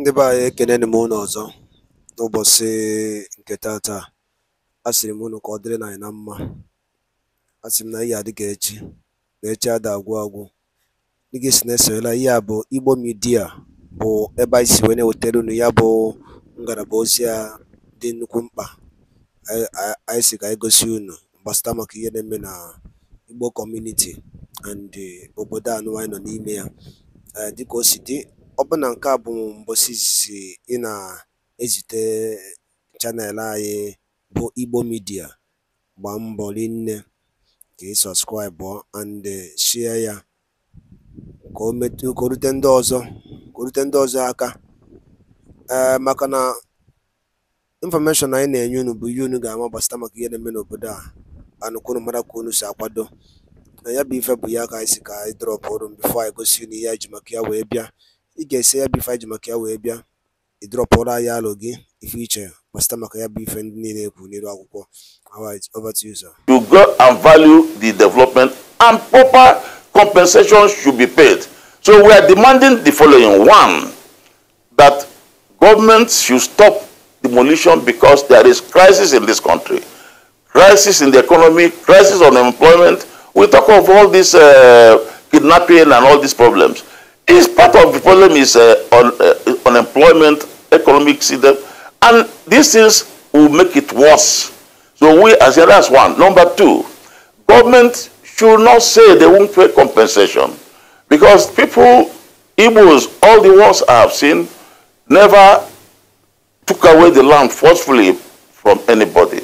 ndị be anyị ekeneni m unu ọzọ n'ụbọchị nke tata a sịrị m unu ka ọ dịrị na anyị na mma Asịrị m na ihe adịghị echi na echi ada agwụ agwụ dịgị si na esoyela ihe a bụ igbo midia bụ ebe anyị si wee na-ewetara unu ya bụ ngalaba ozi a dị nnukwu mkpa anyị si ka anyị gosi unu gbasata maka ihe na-eme na igbo kọmuniti and obodo anụ anyị nọ n'ime ya dịka o si dị ọbụna nke a bụ mbọsị izizi ị na-ezite chanel anyị bụ Igbo midia gbaa mbọ rinne ka ị sọbskraịbụ and sie ya ka o rute ndị ọzọ aka eh, maka na infọmeshọn anyị na-enye unu bụ ihe unu ga-ama gbasịta maka ihe na-eme n'obodo a anụ kwunu mara ka unu si akwado na ya bụ ife bụ ya ka anyị si ka anyị drọpụ ọrụ bifo anyị gosi unu ihe ji maka ya wee bịa ị ga-esi ya bụ ife ji maka ya wee bịa ị drọpụrụ alụ gị ife iche gbasịta maka ya bụ ife ndị niile ekwu n'elu akwụkwọ alright over to you sir. to grow and value the development and proper compensation should be paid so we are demanding the following one that government should stop demolition because there is crisis in this country crisis in the economy crisis on employment we talk of all these uh, kidnapping and all these problems is part of the problem is uh, un, uh, unemployment, economic system, and these things will make it worse. So we, as the last one. Number two, government should not say they won't pay compensation because people, Igbos, all the wars I have seen, never took away the land forcefully from anybody.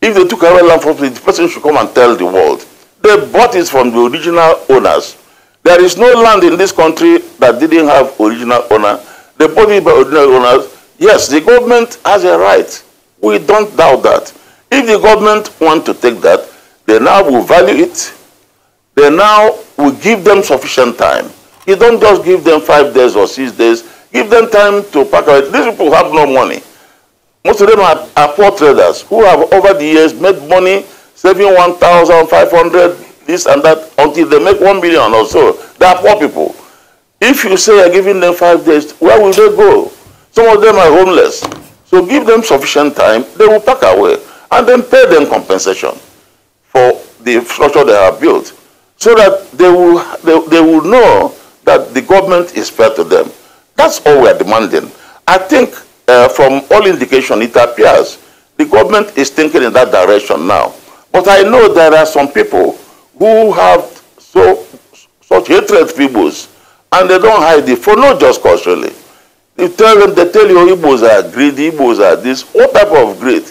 If they took away land forcefully, the person should come and tell the world. They bought it from the original owners. There is no land in this country that didn't have original owner. They bought it by original owners. Yes, the government has a right. We don't doubt that. If the government want to take that, they now will value it. They now will give them sufficient time. You don't just give them five days or six days. Give them time to pack it. These people have no money. Most of them are, are poor traders who have over the years made money saving 1,500, this and that until they make one million or so. They are poor people. If you say you're giving them five days, where will they go? Some of them are homeless. So give them sufficient time, they will pack away and then pay them compensation for the infrastructure they have built so that they will, they, they will know that the government is fair to them. That's all we are demanding. I think uh, from all indication, it appears the government is thinking in that direction now. But I know there are some people who have so such hatred Igbos and they don't hide it for no just cause really. You tell them, they tell you Igbos are greedy, Igbos are this, What type of greed.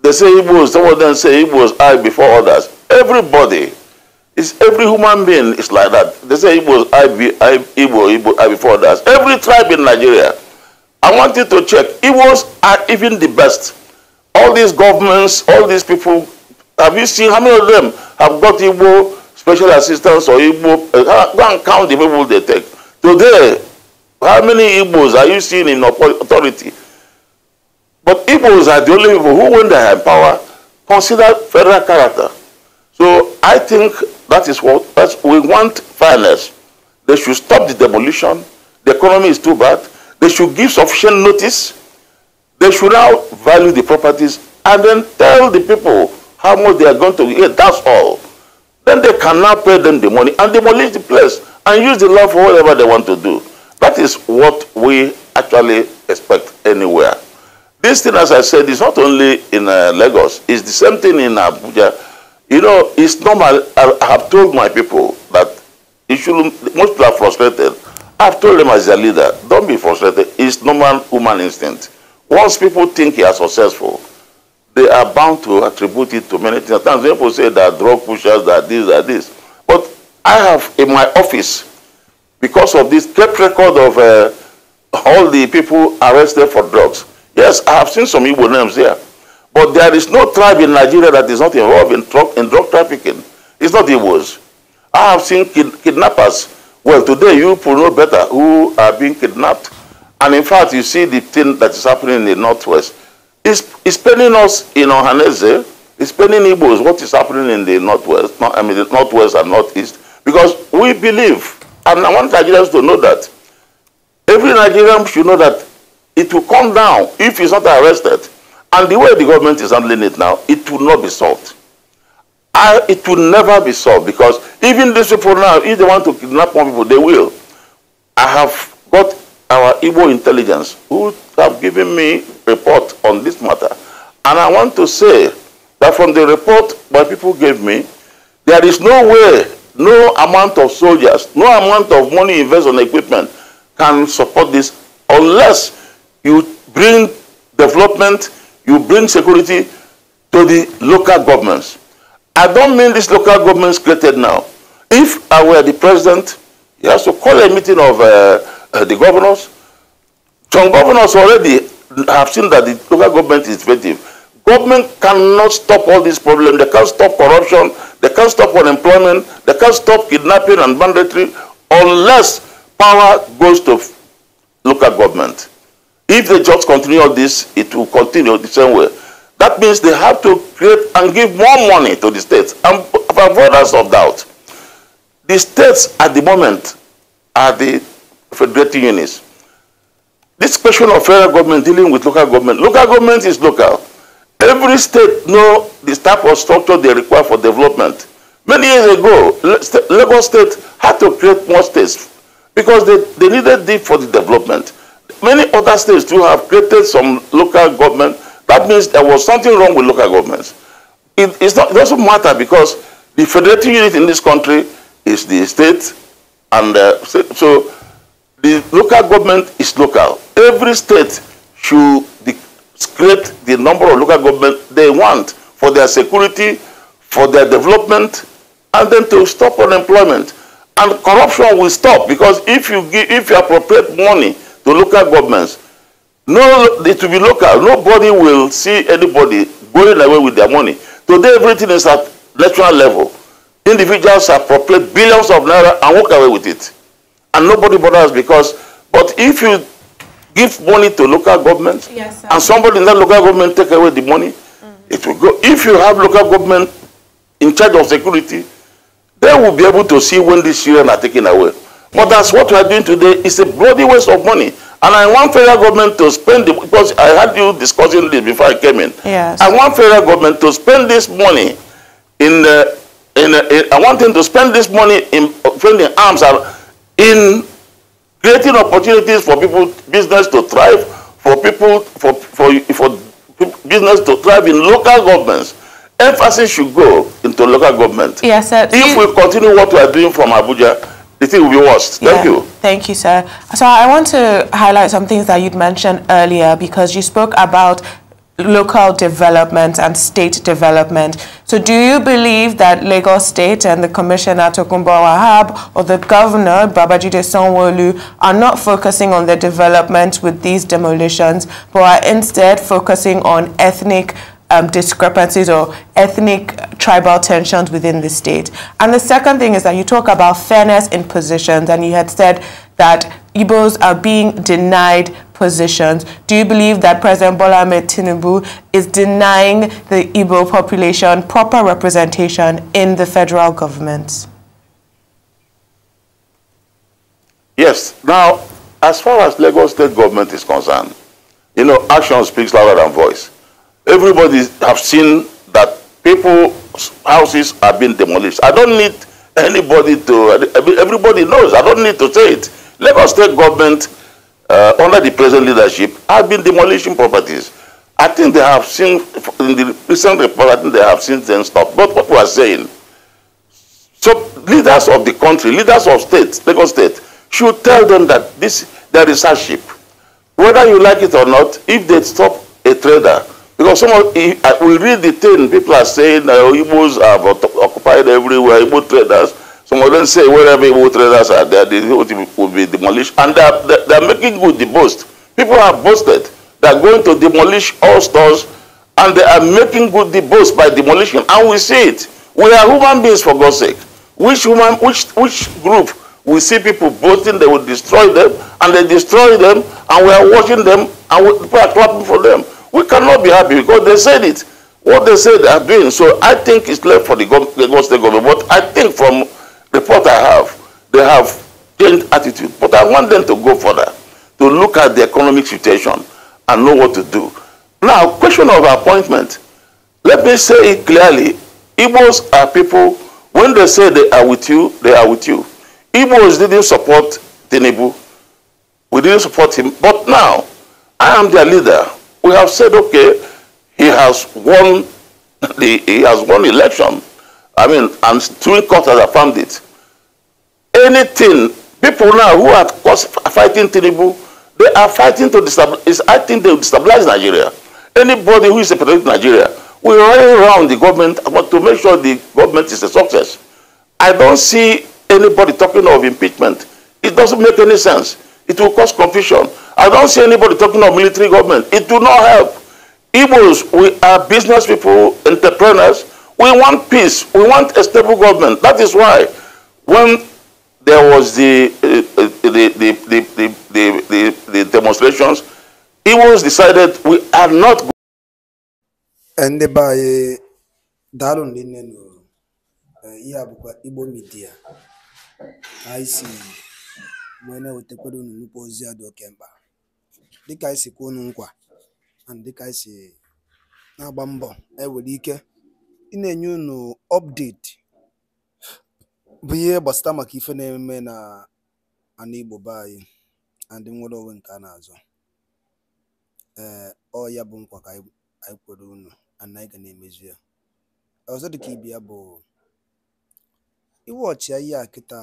They say Igbos, some of them say Igbos are before others. Everybody, is. every human being is like that. They say Igbos I be I Igbo, Igbo I before others. Every tribe in Nigeria. I want you to check. Igbos are even the best. All these governments, all these people Have you seen how many of them have got Igbo special assistance or Igbo? Uh, go and count the people they take. Today, how many Igbos are you seeing in authority? But Igbos are the only people who, when they have power, consider federal character. So I think that is what that's, we want fairness. They should stop the demolition. The economy is too bad. They should give sufficient notice. They should now value the properties and then tell the people how much they are going to get. That's all. Then they cannot pay them the money and demolish the place and use the law for whatever they want to do. That is what we actually expect anywhere. This thing, as I said, is not only in uh, Lagos. It's the same thing in Abuja. You know, it's normal. I, I have told my people that you should, most people are frustrated. I've told them as their leader, don't be frustrated. It's normal human instinct. Once people think you are successful, they are bound to attribute it to many things. Sometimes people say that drug pushers, that this, that this. But I have in my office, because of this kept record of uh, all the people arrested for drugs. Yes, I have seen some evil names there. But there is no tribe in Nigeria that is not involved in, drug, in drug trafficking. It's not Igbos. I have seen kid, kidnappers. Well, today you will know better who are being kidnapped. And in fact, you see the thing that is happening in the Northwest it's, it's paining us in Ohanese. It's paining Igbos what is happening in the northwest, not, I mean the northwest and northeast, because we believe, and I want Nigerians to know that every Nigerian should know that it will come down if he's not arrested. And the way the government is handling it now, it will not be solved. I, it will never be solved because even these people now, if they want to kidnap more people, they will. I have got our Igbo intelligence who have given me report on this matter. And I want to say that from the report my people gave me, there is no way, no amount of soldiers, no amount of money invested on equipment can support this unless you bring development, you bring security to the local governments. I don't mean these local governments created now. If I were the president, he has to call a meeting of uh, uh, the governors. Some governors already have seen that the local government is effective. Government cannot stop all these problems. They can't stop corruption. They can't stop unemployment. They can't stop kidnapping and banditry unless power goes to local government. If they just continue all this, it will continue the same way. That means they have to create and give more money to the states and avoid us of doubt. The states at the moment are the federating units. this question of federal government dealing with local government, local government is local. Every state know the type of structure they require for development. Many years ago, Lagos State had to create more states because they, they needed deep for the development. Many other states too have created some local government. That means there was something wrong with local governments. It, it's not, it doesn't matter because the federating unit in this country is the state, and uh, so The local government is local. Every state should discrete the number of local government they want for their security, for their development, and then to stop unemployment. And corruption will stop because if you give, if you appropriate money to local governments, no, it will be local. Nobody will see anybody going away with their money. Today, everything is at national level. Individuals appropriate billions of naira and walk away with it and nobody bothers because, but if you give money to local government yes, and somebody in that local government take away the money, mm. it will go. If you have local government in charge of security, they will be able to see when these children are taken away. But that's what we are doing today. It's a bloody waste of money. And I want federal government to spend it because I had you discussing this before I came in. Yes. I want federal government to spend this money in the uh, in, uh, in, I want them to spend this money in, uh, in arms. Are, in creating opportunities for people business to thrive for people for for for business to thrive in local governments emphasis should go into local government. Yes, sir. If you, we continue what we are doing from Abuja, the thing will be worse. Thank you. Thank you, sir. So I want to highlight some things that you'd mentioned earlier because you spoke about local development and state development. So do you believe that Lagos State and the Commissioner Tokumbo Wahab or the Governor Babajide Sanwo-Olu are not focusing on the development with these demolitions, but are instead focusing on ethnic um, discrepancies or ethnic tribal tensions within the state. And the second thing is that you talk about fairness in positions, and you had said that Igbos are being denied positions. Do you believe that President Bola Ahmed Tinubu is denying the Igbo population proper representation in the federal government? Yes. Now, as far as Lagos state government is concerned, you know, action speaks louder than voice. Everybody have seen that people's houses are being demolished. I don't need anybody to, everybody knows, I don't need to say it. Lagos state government uh, under the present leadership have been demolishing properties. I think they have seen, in the recent report, I think they have seen them stop. But what we are saying, so leaders of the country, leaders of states, Lagos state, should tell them that this there is hardship. Whether you like it or not, if they stop a trader, because some of, we read the thing, people are saying uh, Igbos have occupied everywhere, Igbo traders, Congolans say wherever evil traders are there, they will be demolished. And they are, they are making good the boast. People are boasted. They are going to demolish all stores and they are making good the boast by demolition. And we see it. We are human beings for God's sake. Which human, which, which group we see people boasting, they will destroy them, and they destroy them, and we are watching them, and we, people are clapping for them. We cannot be happy because they said it. What they said they are doing. So I think it's left for the, the God's government. But I think from The thought I have, they have changed attitude, but I want them to go further, to look at the economic situation and know what to do. Now, question of appointment. Let me say it clearly. Igbos are people, when they say they are with you, they are with you. Igbos didn't support Tinubu. We didn't support him. But now, I am their leader. We have said, okay, he has won the he has won election. I mean, and three courts have affirmed it. Anything, people now who are fighting Tinubu, they are fighting to destabilize, I think they will destabilize Nigeria. Anybody who is supporting Nigeria will rally around the government but to make sure the government is a success. I don't see anybody talking of impeachment. It doesn't make any sense. It will cause confusion. I don't see anybody talking of military government. It do not help. Igbos, we are business people, entrepreneurs, We want peace. We want a stable government. That is why when there was the, uh, uh the, the, the, the, the, the, the demonstrations, it was decided we are not going ndị be anyị daalụ ndị nne nụrụ eh, ihe a bụkwa igbo midia anyị si wee na-ewetakwara unu nnukwu ozi a dị oke mkpa dịka anyị si kwuo unu nkwa na dịka anyị si ị na-enye unu update bụ ihe gbasata maka ife na-eme na ana Igbo be anyị na ndị nwere onwe nke a na-azọ ee ọ ya bụ nkwa ka anyị kwere unu ana anyị ga na-emezu ya ọzọ dịka ibe ya bụ iwe ọchịa ihe a kịta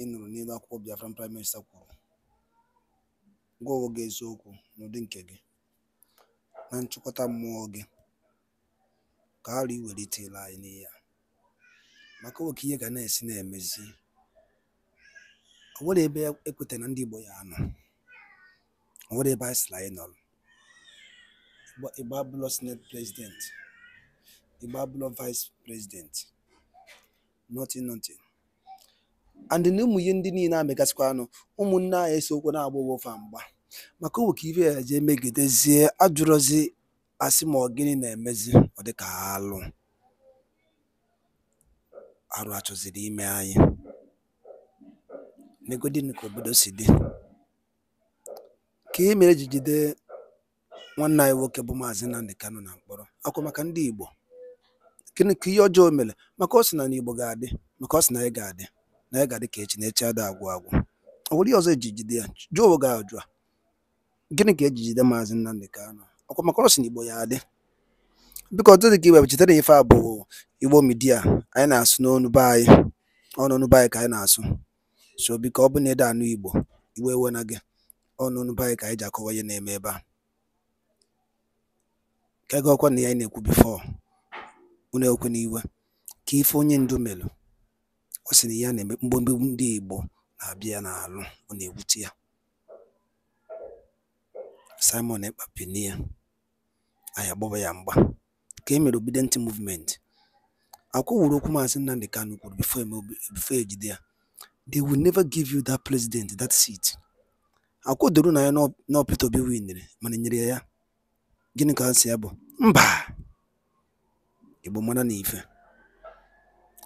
ị nụrụ n'elu akwụkwọ Biafra, prime minista kwuru gwa onwe gị eziokwu n'ụdị nke gị na nchịkọta mmụọ gị ka arụ iwelitela anyị n'ihe a maka oke ihe ga na-esi na-emezi ọ nwere ebe ekweta na ndị Igbo ya anọ ọ nwere ebe anyị sịrị anyị nọrọ Igbo abụlọ senate president Igbo abụlọ vice president nothing nothing and na ụmụ ihe ndị niile amegasịkwa anụ ụmụnne anyị esiokwu na-agba owofa mgba maka owe ka ibe ya jee megidezie ajụrụzi asị ma ọ gịnị na-emezi ọ dịka alụ arụ achọziri ime anyị negodi ka obodo si dị ka e mere ji jide nwanne anyị nwoke bụ maazị Nnamdi Kanu na mkpọrọ Akwụ maka ndị Igbo gịnị ka ihe ọjọọ mere maka ọ sị na n'Igbo ga-adị maka ọ sị na anyị ga-adị na anyị ga-adị ka echi na echi ada agwụ agwụ ọ nwere ihe ọzọ eji jide ya jụọ ga ajụ a gịnị ka ejijide maazị Nnamdi Kanu akwa maka ọ sị na Igbo ya adị biko dị ka iwebụ chetara ife a bụ igbo midia anyị na-asụ n'onu be anyị ọnụnụ be anyị ka anyị na-asụ so biko ọ bụ na ede anụ igbo iwe ewe na gị ọnụnụ be anyị ka anyị ji akọwa ihe na-eme ebe a ka gị ọkwa na ya na-ekwu bifọ unu ekwe n'iwe ka ife onye ndu melụ ọ sị na ya na-eme mgbomgbegbu ndị igbo na-abịa ya n'alụ ọ na-ewute ya Simon ekpapinie anyị agbawa ya mgba ka e mere Obidient Movement. Akwa wuru okwu Maazị Nnamdi Kanu kwuru e before e jide ya they will never give you that president that seat. Akwa na ya na Peter Obi winere mana nyere ya ya gịnị ka ha si ya bụ mba Igbo mara na ife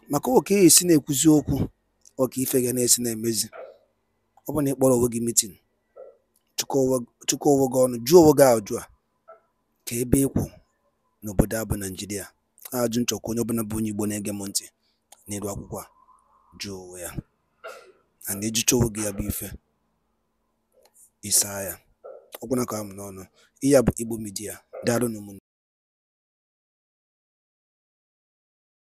maka oke esi na-ekwuzi okwu ọka ife ga na-esi na-emezi ọ bụ na ịkpọrọ onwe gị mitin chụkọ onwe gị ọnụ jụọ onwe gị ajụ a ka ebe ịkwụ n'obodo a bụ a Ajụ nchọkwa onye ọbụla bụ onye Igbo na-ege m ntị n'elu akwụkwọ a ya na ịjụcha onwe gị ya bụ ife ịsaa ya na ka m n'ọnụ ihe a bụ Igbo Media daalụ